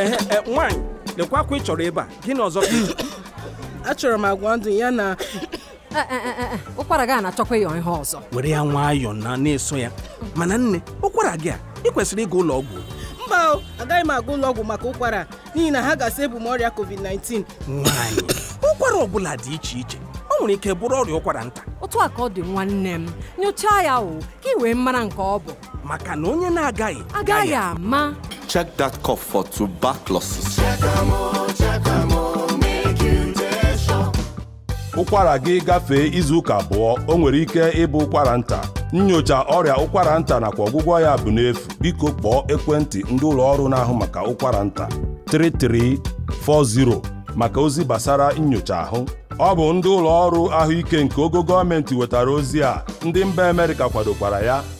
Eh, eh, eh, nwaanyị lekwa akwa ị chọrọ ebe a gịnị ọzọ achọrọ m agwa ndụ ya na ụkwara gị a na-achọkwa ihe ọzọ were ya nwayọọ na na-eso ya mana nne ụkwara gị a ị kwesịrị ịga ụlọ ọgwụ mba agaghị m aga ụlọ ọgwụ maka ụkwara n'ihi na ha gasị ebu m ọrịa covid-19 nwaanyị ụkwara ọ bụla dị iche iche ọ nwere ike bụrụ ọrịa ụkwara nta otu a ka ọ dị nwanne m nyochaa ya o ka ị wee mara nke ọ bụ maka na onye na-agaghị agaghị ama check that cough for tuberculosis. ụkwara gị gafee izu ụka abụọ o nwere ike ịbụ ụkwara nta Nyocha ọrịa ụkwara nta nakwa ọgwụgwọ ya bụ n'efu biko kpọọ ekwentị ndị ụlọ ọrụ na-ahụ maka ụkwara nta 3340 maka ozi gbasara nnyocha ahụ ọ bụ ndị ụlọ ọrụ ahụike nke ogo gọọmenti wetara ozi a ndị mba Amerịka kwadokwara ya